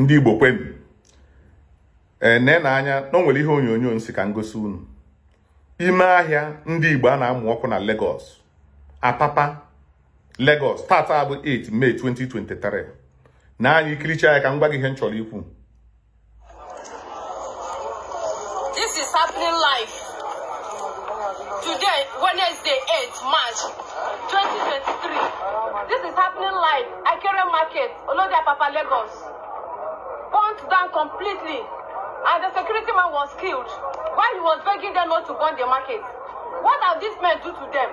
ndị Igbo kwenu ene eh, na anya na o nwere ihe onyonyo nsi ka ngosi unu ime ahịa ndị Igbo a na-amụ ọkụ na Lagos Apapa Lagos tata bụ 8 May 2023 na anyị ikiricha ya ka m gwa gị ihe m chọrọ ikwu This is happening live today Wednesday 8 March 2023 This is happening live Akere Market Olodi Apapa Lagos burnt down completely and the security man was killed while he was begging them not to burn the market. What have these men do to them?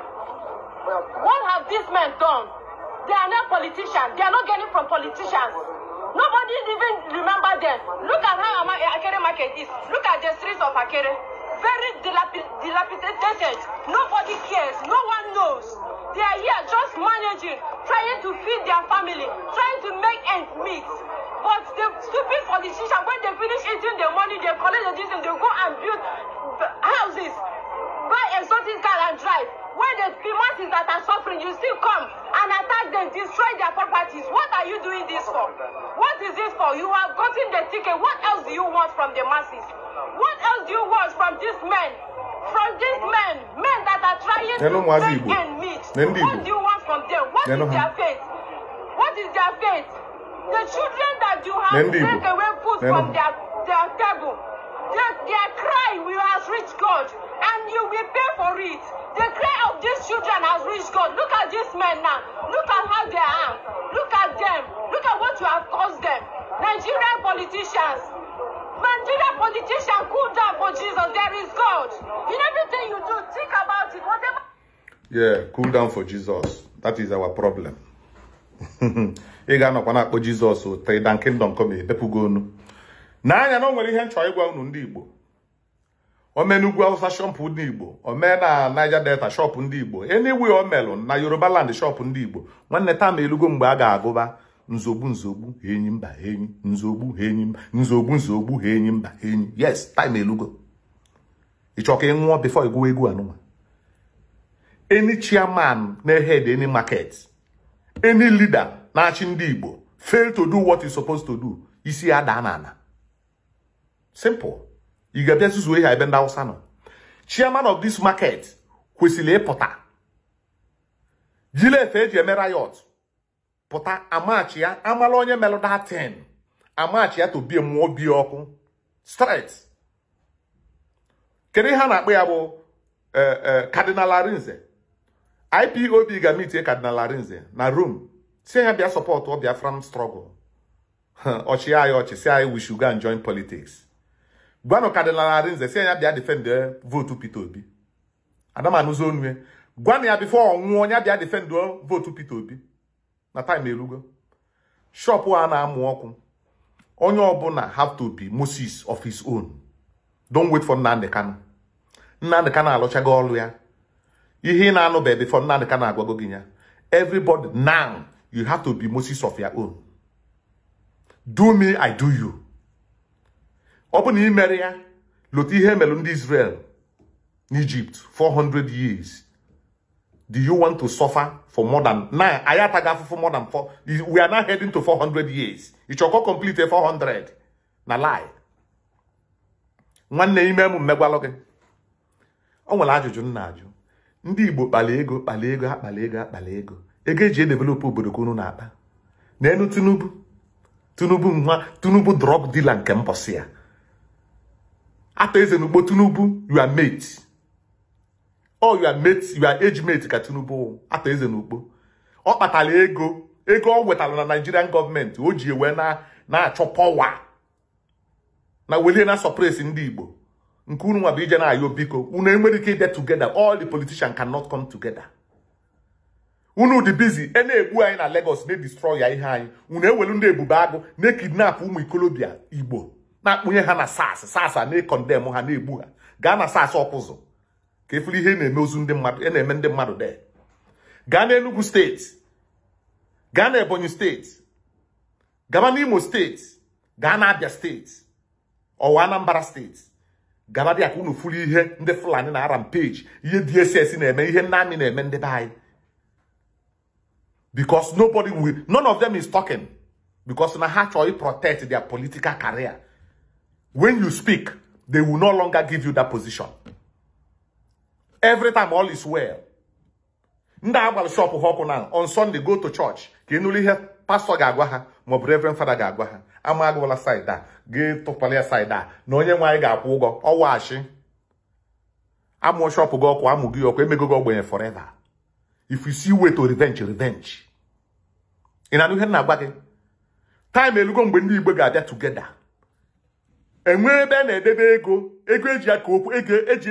What have these men done? They are not politicians. They are not getting from politicians. Nobody even remember them. Look at how eh, Akere market is. Look at the streets of Akere. Very dilapidated. Nobody cares. No one knows. They are here just managing, trying to feed their family, trying to make ends meet. But the stupid politicians, when they finish eating the money, they collect the diesel and they go and build houses, buy exotic car and drive. When the masses that are suffering, you still come and attack them, destroy their properties. What are you doing this for? What is this for? You are gotten the ticket. What else do you want from the masses? What else do you want from these men? From these men, men that are trying to take and meet. What do you want from them? What is their faith? What is their faith? The children You have Mendigo. taken away food Mendigo. from their, their table. Their, their cry will has reached God, and you will pay for it. The cry of these children has reached God. Look at these men now. Look at how they are. Look at them. Look at what you have caused them. Nigerian politicians. Nigerian politicians, cool down for Jesus. There is God. In everything you do, think about it. Whatever. Yeah, cool down for Jesus. That is our problem. ị ga-anọkwa na-akpọ jizọs tridan kingdom come ebepụgo onu n'anya na o nwere ihe nchọ ịgwa unu ndị igbo omee awụsa shọpụ ndị igbo omee na naija delta shọpụ ndị igbo eniwe omelụ na yoruba land shọpụ ndị igbo nwanne taa elugo mgbe a ga-agụba nzogbu nzogbu enyi mba enyi nzogbu enyi mba nzogbu nzogbu enyi mba enyi yes time elugo ịchọ ka ị egwu egwu anụnwa eni chairman na head eni market any leader na-achị ndị Igbo fail to do what is supposed to do isi ya daa n'ala simple ị ga-abịa zuzuo ihe ebe ndị Hausa nọ chairman of this market kwesịrị ịpụta jile eji e eme rayot pụta amachi ya amala onye melụ that ten, amachi ya to bie mmụọ bie ọkụ straight kedu ihe a na-akpọ ya bụ eh, eh, Cardinal Arinze IPOB ga-amitie Cardinal Arinze na Rome si ya bịa sọpọtụ Biafran struggle ọchị anyị ọchị si anyị we should go and join politics gwanụ Cardinal Arinze si ya bịa defend eh, votu Peter Obi adamanụzo onue eh. gwanụ ya bifo ọnwụọ onye bịa defend eh, votu Peter Obi na time erugo shop a na-amụ ọkụ onye ọbụla have to be Moses of his own don't wait for Nnamdi Kanu Nnamdi Kanu alụchago ọlụ ya ihe ị na-anụbe before Nnamdi Kanu agwago gị ya everybody now you have to be Moses of your own do me I do you ọ bụ na ị mere ya lotu ihe ndị Israel n'Egypt 400 years do you want to suffer for more than now anyị ataghị afụfụ more than four we are now heading to 400 years ịchọkọ complete 400 na lie nwanne ime m mmegwalụ gị o nwere ajụjụ nna ajụ ndị Igbo kpala ego kpala ego akpala ego akpala ego ego eji edevelopa obodo ka unu na-akpa n'elu Tinubu Tinubu nwa Tinubu drug dealer nke mbọsị ya ata eze n'ugbo Tinubu you are mate oh, you are mate age mate ka Tinubu ata eze n'ugbo ọ kpatara ego ego ọ nwetara na Nigerian gọọmenti o ji wee na na-achọ pọwa na welie na sọpresi ndị Igbo nke unu nwa bụ ije na-ayọ biko unu enwere ike ịbịa together all the politicians cannot come together unu dị bizi e na-egbu anyị na legos na-edestroy ya ihe anyị unu ewelu ndị ebube agụ na-ekidnap ụmụ ikolobịa Igbo na-akpụnye ha na sas sas na-ekondem ha na-egbu ha gaa na sas ọkụzụ ka efuru ihe na-eme ozu ndị mmadụ e na-eme ndị mmadụ de gaa na Enugu steeti gaa na Ebonyi steeti gaba imo steeti gaa na Abia steeti ọwa anambara steeti gabadị aka unu furu ihe ndị fulani na rampage ihe dss na-eme ihe nna amị na-eme ndị be because nobody will none of them is talking because na ha chọọ protect their political career when you speak they will no longer give you that position every time all is well ndị a gbara shọpụ ha ọkụ na on Sunday go to church ka ị nụrụ ihe pastọ ga-agwa ha maọbụ reverend fada ga-agwa ha ama agụwala saịd a ga-etụkwala ya a na onye nwe anyị ga-akwụ ụgwọ ọwaghachi amụọ shọpụ gị ọkụ amụ gị ọkụ emego gị ogbenye forever if you see way to revenge revenge ị na-anụ ihe na-agwa gị time elugo mgbe ndị igbo ga-abịa tugeda enwe ebe a na-edebe ego ego eji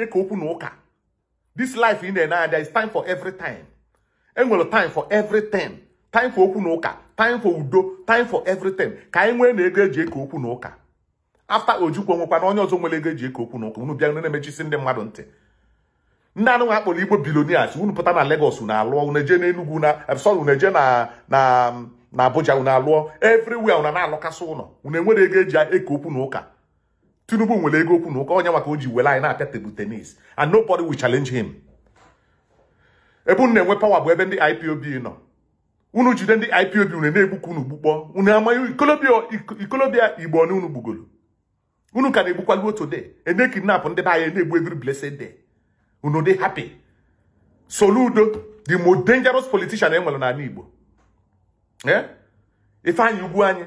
e eke okwu na ụka this life ị na-ene anya is time for every time enwere time for everything time for okwu na ụka time for udo time for everything ka anyị nwee na ego eji eke okwu na ụka afta ojukwu nwekwa na onye ọzọ nwere ego eji eke okwu na ụka unu bịa na-emechisi ndị mmadụ ntị ndị anụ nwa akpọrọ igbo bilonias unu pụta na Lagos unu alụọ uneje eje Enugwu na eh, sorry unu eje na na na Abuja unu alụọ everywhere unu na-alụkasị ụlọ unu enwere ego eji eke okwu na ụka Tinubu nwere ego okwu na ụka onye maka o ji were anyị na-apịa tebụl tenis and nobody will challenge him ebe unu na-enwe pawa bụ ebe ndị IPOB nọ unu jide ndị IPOB unu na-egbukwa unu gbukpọ unu amaghị ikolobịa igbo na unu gbugoro unu ka na egbukwalu otu de ene kidnap ndị be anyị na-egbu every blessed de unu dị happy Soludo the most dangerous politician e nwere n'ala Igbo eh? Ifeanyi Ugwu anyị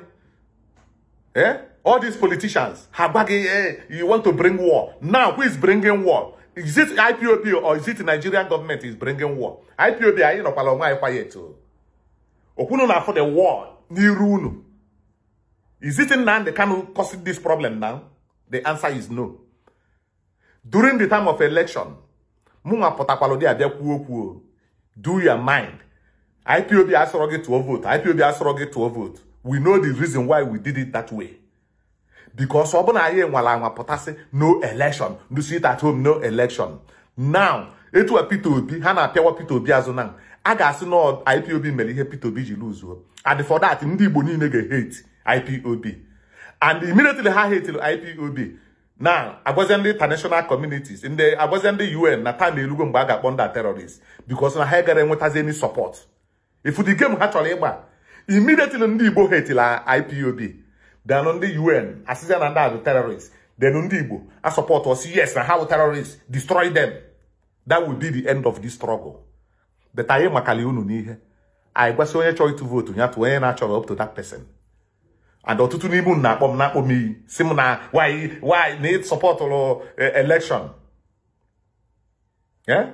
eh? all these politicians ha gwa gị eh, you want to bring war now who is bringing war is it IPOB or is it Nigerian government is bringing war? IPOB anyị nọkwala onwe anyị quiet o. Oh? Okwunu na-afọ the war n'iru unu. Is it Nnamdi Kanu causing this problem now? The answer is no. During the time of election, mụnwa pụtakwala ụdị abịa kwuo okwu o. Do your mind. IPOB asọrọ gị tụọ vote. IPOB asọrọ gị tụọ vote. We know the reason why we did it that way. because ọ bụ na anyị nwara anwa pụtasị no election do sit at home no election now a Peter Obi ha na-apịawa Peter Obi azụ na a ga-asị na IPOB mere ihe Peter Obi ji luzuo and for that ndị Igbo niile ga-hate IPOB and immediately ha hate IPOB na agwazie ndị international communities ndị agwazie ndị UN na time elugo mgbe a ga-akpọ ndị terrorist because na ha gara enwetazi any support ifu the ha chọrọ ịgba immediately ndị Igbo hetila IPOB denụ ndị un asịzia na ndị abụ terrorist denụ ndị igbo asọpọt ọsị yes na ha wụ destroy them that will be the end of this struggle but anyị makali unu n'ihe anyị gwasị onye chọrọ ịtụ vootu ya tụọ onye na-achọrọ up to that person and ọtụtụ n'ime m na-akpọ m na-akpọ why need support or e, election yeah?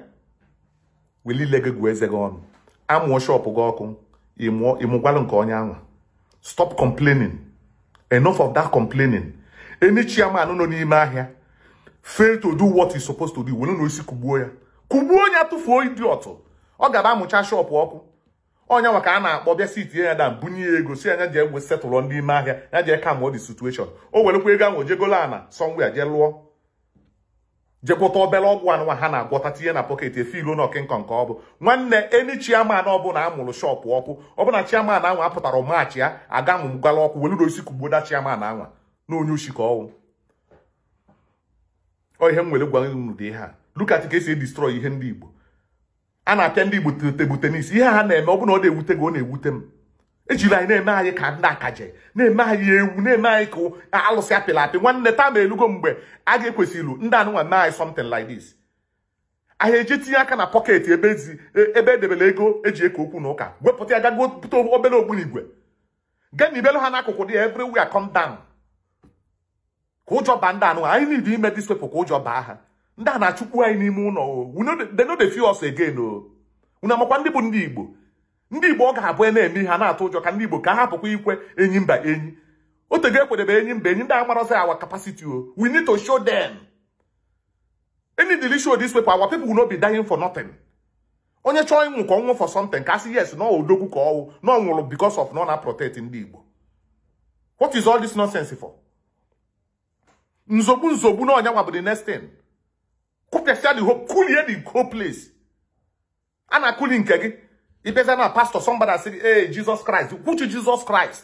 gị gwuo eze gị ọnụ amụọ shọpụ gị ọkụ ịmụgwalụ nke onye stop complaining enough of that complaining any chairman nọ n'ime ahia fail to do what he supposed to do were na osi kugbuo ya kugbuo onye tụfuo idiot ọ oh, gara amụcha shop ọkụ onye nwa ka a na-akpọ bịa sit ya da bunye ya ego si anya ji egwe setụlụ ndị ime ahịa ya jee ka mụọ the situation o oh, werekwa ego ahụ o jegolo ana somewhere je lụọ jekwụta obele ọgwụ anụnwa ha na-agwọta tinye na pọket efe ilo n'ọkị nkọ nke ọ bụ nwanne eni chiaman ọbụla amụrụ shọpụ ọkụ ọbụla chiaman anwa apụtara maachị ya aga mụ gwala ọkụ weluru osi kugboda chiaman anwa na onye ushi ka ọnwụ ọ ihe m nwere gwara unu dị ihe a lukat ka esi edistrọy ihe ndị igbo a na-apịa ndị igbo tebụl tenis ihe ha na-eme ọ ọ na-ewute gị ọ na-ewute m ejila anyị na-eme anyị ka ndị akaje na-eme anyị ewu na-eme anyị ka alụsị apịla apị nwanne taa ma elugo mgbe a ga-ekwesịrị ndị anụnwa mee anyị something like this anyị eji tinye aka na pọket ebe edebere e, e ego eji eke okwu na ụka wepụta ya gago bute obere ogbunigwe gaa na ibelu ha n'akụkụ dị ya everywhere come down ka ụjọ baa ndị anụnwa anyị need ime this ka ụjọ baa ha ndị a na-achụkwu anyị n'ime ụlọ o they no dey feel us again o oh. unu amakwa ndị bụ ndị Igbo ndị igbo ọ ga-abụ e na-eme ihe na-atụ ụjọ ka ndị igbo ka hapụkwa ikwe enyi mba enyi otego ekwadebe enyi mba enyi ndị amarọzi awa kapasiti o oh. we need to show them any dili show this paper our people will not be dying for nothing onye chọọ ịnwụ ka ọ nwụ for something ka sị yes na odogwu ka ọnwụ na ọ nwụrụ because of na na protect ndị igbo what is all this nonsense for nzogbu nzogbu na ọnyanwa bụ the next thing kụpịasịa the whole kulie the whole place a na-akụli nke gị ibeza na pastor somebody say eh Jesus Christ kwuchu Jesus Christ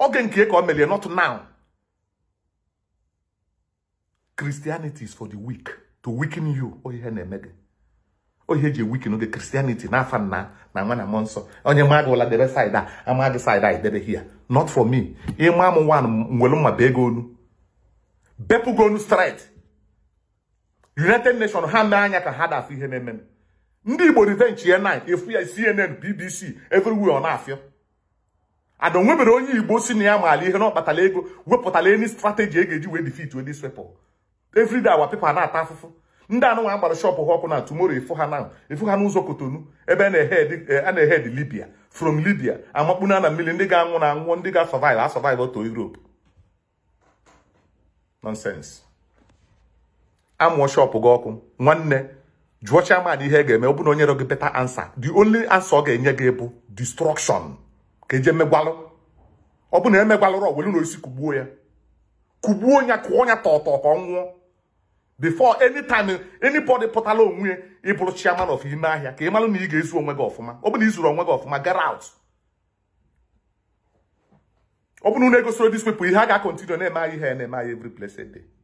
oge nke ka o melie not now Christianity is for the weak to weaken you o ihe na-eme gị o ihe eji eweaken oge Christianity na afa na nwa na mmụọ nsọ onye ma gị ụla debe side a ama gị side a idebe here not for me ịma m nwa nwere mma bee gị onu bepụ gị onu straight United Nations ha mee anya ka ha dafụ ihe na-eme ndị igbo ridenchie 9 ịfụ ya cnn bbc everywhere ọ na-afịa ada nwebere onye igbo si na ya maala ihe na ọkpatala ego wepụtala eni strategi e ga-eji wee defeat wee disrepl everyday awa pepa na-ata afụfụ ndị anụnwa agbara shọpụ ha ọkụ na tumoro efu ha na efu ha n'ụzọ kotonu ebe a na-ehed eh, libya from libya amakpuna na mmiri ndị ga-anwụ na anwụọ ndị ga-asọvive asọvive oto europe amụọ shọpụ gị ọkụ nwanne jụọ chairman ihe ga-eme ọ bụ na onyere gị beta ansa the only ansa ọ ga-enye gị bụ destruction ka eji megwalụ ọ bụ na emegwalụrọ welu osisi kugbuo ya kugbuo ya kụọ ya tọtọ ka ọ nwụọ before anytime anybody pụtala onwe ịbụrụ chairman of ime ahịa ka ị malụ na ị ga-ezu onwe gị ọfụma ọ bụ na ị onwe gị ọfụma gara out ọ bụ na unu egosoro dis people ihe a ga-akọntinue na-eme anyị ihe na-eme anyị every place